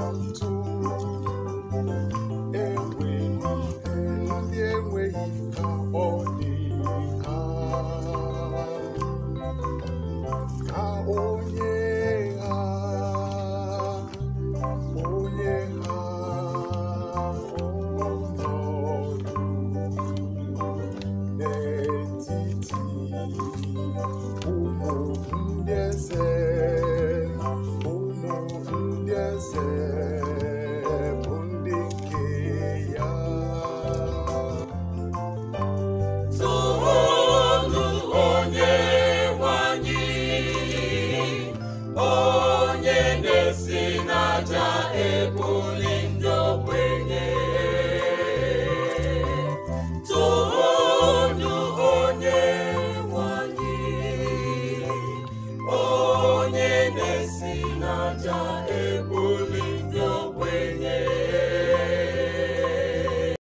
满足。Dark.